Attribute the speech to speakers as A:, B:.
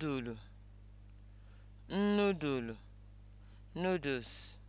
A: Nudulu, nudulu, noodles